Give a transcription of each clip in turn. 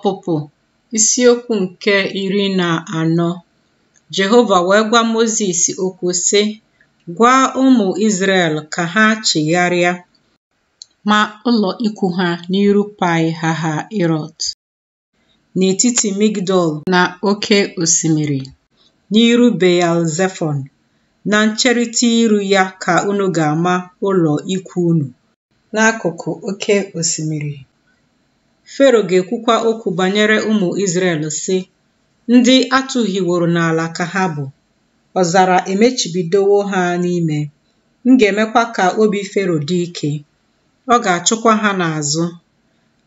Ọpụpụ isiokwu nke iri na anọ Jehova wee gwa Mozis okwu sị gwa ụmụ Izrel ka ha chigharịa ma ụlọ ikwu ha n'iru Pi Hahirot n'etiti Migdol na oke osimiri n'iru Beelzefon na ncherịta iru ya ka unu ga-ama ụlọ ikwu unu n'akụkụ oke osimiri Fero ga-ekwukwa okwu banyere ụmụ Izrel, sị: “Ndị atụhiworo n'ala ka ha bụ, ọzara emechibidowo ha n'ime. M ga-emekwa ka obi Fero dị ike, ọ ga-achụkwa ha n'azụ.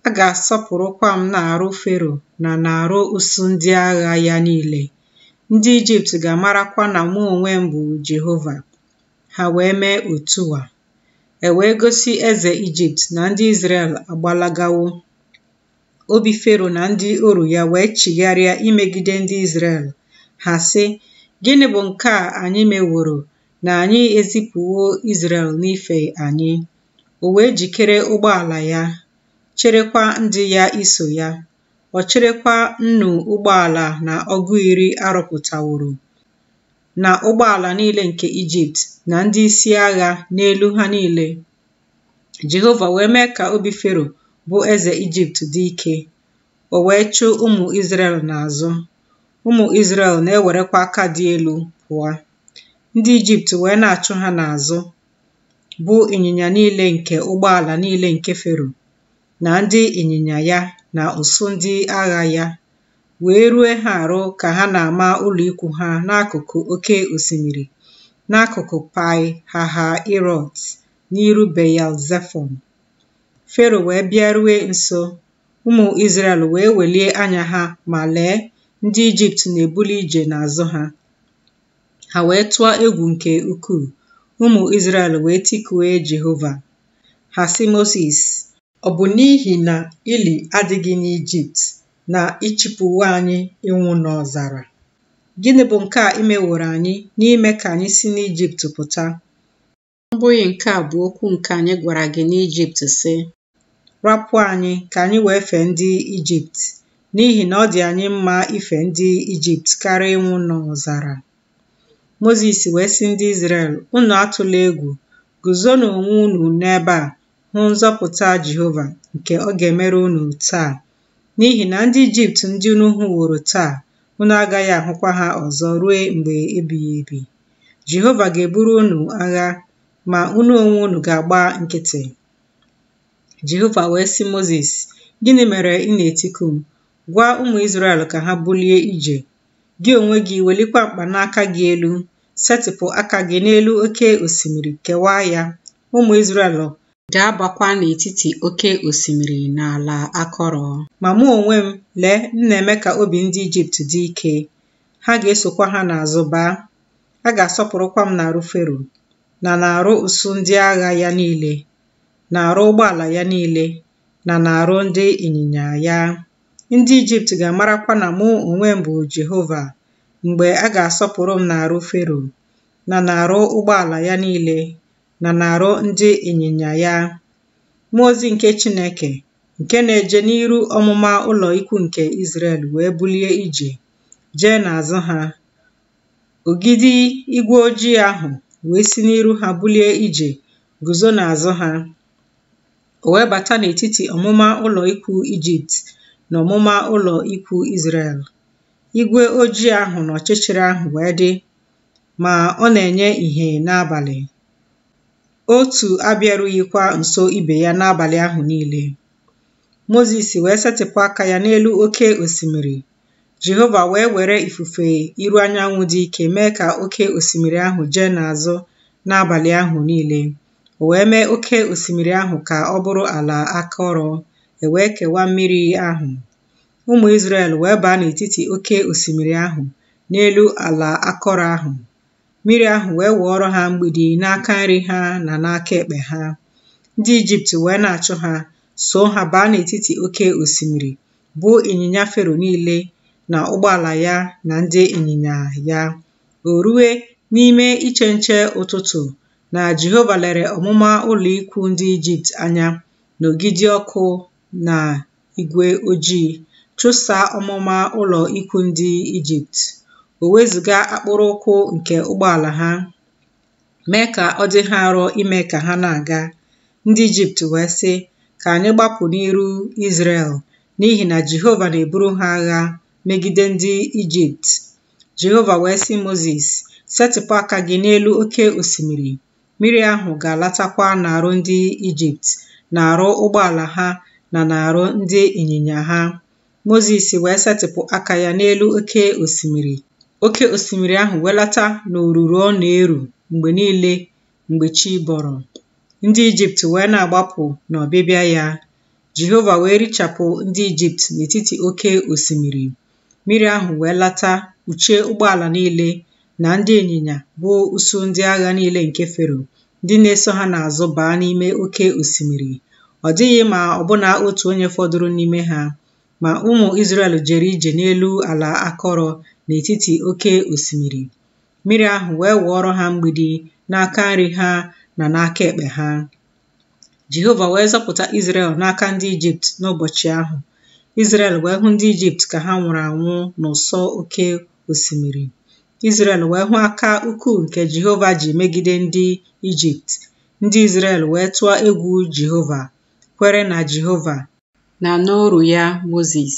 A ga-asọpụrụkwa m na arụ Fero na arụ usu ndị agha ya niile. Ndị Ijipt ga-amarakwa na mụ onwe m bụ Jehova.” Ha wee mee otu a, e wee gosi eze Ijipt na ndị Izrel agbalagawo. obi Fero na ndị oru ya wee chigharịa imegide ndị Izrel ha sị gịnị bụ nke a anyị meworo na anyị ezipụwo Izrel n'ife anyị o wee jikere ụgbọala ya cherekwa ndị ya iso ya ọ cherekwa nnu ụgbọala na ọgụ iri arọpụtaworo na ụgbọala niile nke Ijipt na ndị isi agha n'elu ha niile Jehova wee mee ka obi Fero bụ eze Ijipt dị ike, o wee chụ ụmụ Izrel n'azụ. Ụmụ isrel na-ewerekwa aka dị elu pụọ. Ndị Ijipt wee na-achụ ha n'azụ, bụ ịnyịnya niile nke ụgbọala niile nke Fero, na ndị ịnyịnya ya na ụsụ ndị agha ya, wee rue ha arụ ka ha na-ama ụlọ ha n'akụkụ oke osimiri, n'akụkụ Pi Hahirot, n'iru Beyal-Zefọn. Fero wee bịaruo nso, ụmụ Izrel wee welie anya ha ma lee, ndị Ijipt na-ebuli ije n'azụ ha. Ha wee tụọ egwu nke ukwuu. Ụmụ Izrel wee tikue Jehova. Ha sị Mosis, ọ bụ n'ihi na ili adịghị n'Ijipt na ịchịpụwa anyị ịnwụ n'ọzara? Gịnị bụ nke a imeworo anyị n'ime ka anyị si n'Ijipt pụta? Ọ bụghị nke a bụ okwu nke anyị gwara gị n'Ijipt sị, rapụ anyị ka anyị wee fee ndị Ijipt n'ihi na ọ dị anyị mma ife ndị Ijipt karịa ịnwụ n'ọzara. Mozis wee sị ndị Izrel, unu atụla egwu, na onwe unu n'ebe a hụ nzọpụta Jehova nke ọ ga-emere unu taa, n'ihi na ndị Ijipt ndị unu hụworo taa, unu agaghị ahụkwa ha ọzọ ruo mgbe ebighị ebi. Jehova ga-eburu unu agha, ma unu onwe unu ga-agba nkịtị. Jehova wee sị Mozis, Gịnị mere ị na-etiku m? Gwa ụmụ Izrel ka ha bulie ije. Gị onwe gị welikwa n'aka gị elu, setịpụ aka gị n'elu oke osimiri kewaa ya. Ụmụ Izrel Gaa agbakwa n'etiti oke osimiri na ala akọrọ. Ma mụ onwe m, lee, m na-eme ka obi ndị Ijipt dị ike. Ha ga-esokwa ha n'azụ baa. A ga-asọpụrụkwa m arụ Fero na na-arụ usu ndị agha ya niile. n'arụ ụgbọala ya niile na n'arụ ndị ịnyịnya ya. Ndị Ijipt ga-amarakwa na mụ onwe m bụ Jehova mgbe a ga-asọpụrụ m n'arụ Fero, na n'arụ ụgbọala ya niile, na n'arụ ndị ịnyịnya ya. Mmụọ ozi nke Chineke nke na-eje n'iru ọmụma ụlọ ikwu nke Izrel wee bulie ije jee n'azụ ha. Ogidi igwe ojii ahụ wee si n'iru ha bulie ije guzo n'azụ ha. o wee bata n'etiti ọmụma ụlọ ikwu Ijipt na ọmụma ụlọ ikwu Izrel. Igwe ojii ahụ na ọchịchịrị ahụ wee dị, ma ọ na-enye ihe n'abalị. Otu abịarughịkwa nso ibe ya n'abalị ahụ niile. Mozis wee setịpụ aka ya n'elu oke osimiri. Jehova wee were ifufe iru anyanwụ dị ike mee ka oke osimiri ahụ jee n'azụ n'abalị ahụ niile. o wee mee oke osimiri ahụ ka ọ bụrụ ala akọrọ e wee kewaa mmiri ahụ ụmụ Izrel wee baa n'etiti oke osimiri ahụ n'elu ala akọrọ ahụ mmiri ahụ wee wụọrọ ha mgbidi n'aka nri ha na n'aka ekpe ha ndị Ijipt wee na-achụ ha so ha baa n'etiti oke osimiri bụ ịnyịnya Fero niile na ụgbọala ya na ndị ịnyịnya ya o ruwe n'ime iche nche ụtụtụ na Jehova lere ọmụma ụlọ ikwu ndị Ijipt anya n'ogidi ọkụ na igwe ojii, chụsa ọmụma ụlọ ikwu ndị Ijipt, o wezụga akpụrụ ụkwụ nke ụgbọala ha, mee ka ọ dị ha arọ ime ka ha na-aga. Ndị Ijipt wee sị, “Ka anyị gbapụ n'iru Izrel, n'ihi na Jehova na-eburu ha agha megide ndị Ijipt.” Jehova wee sị Mosis, “Setịpụ aka gị n'elu oke osimiri.” mmiri ahụ ga-alatakwa n'arụ ndị Ijipt n'arụ ụgbọala ha na n'arụ ndị ịnyịnya ha. Mozis wee setịpụ aka ya n'elu oke osimiri oke osimiri ahụ welata n'oruru ọ na-eru mgbe niile mgbe chi bọrọ ndị Ijipt wee na-agbapụ n'ọbịbịa ya Jehova wee richapụ ndị Ijipt n'etiti oke osimiri mmiri ahụ wee lata kpuchie ụgbọala niile na ndị ịnyịnya bụ uso ndị agha niile nke Fero ndị na-eso ha n'azụ baa n'ime oké osimiri ọ dịghị ma ọbụna otu onye fọdụrụ n'ime ha ma ụmụ Izrel jere ije n'elu ala akọrọ n'etiti oké osimiri mmiri ahụ wee wụọrọ ha mgbidi n'aka nri ha na n'aka ekpe ha Jehova wee zọpụta Izrel n'aka ndị Ijipt n'ụbọchị ahụ Izrel wee hụ ndị Ijipt ka ha nwụrụ anwụ n'ụsọ oke osimiri Izrel wee hụ aka ukwuu nke Jehova ji megide ndị Ijipt, ndị Izrel wee tụọ egwu Jehova, kwere na Jehova na n'ọrụ ya Moses.